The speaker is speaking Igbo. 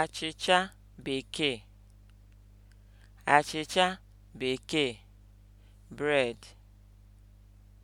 achịcha bekee achịcha bekee bred.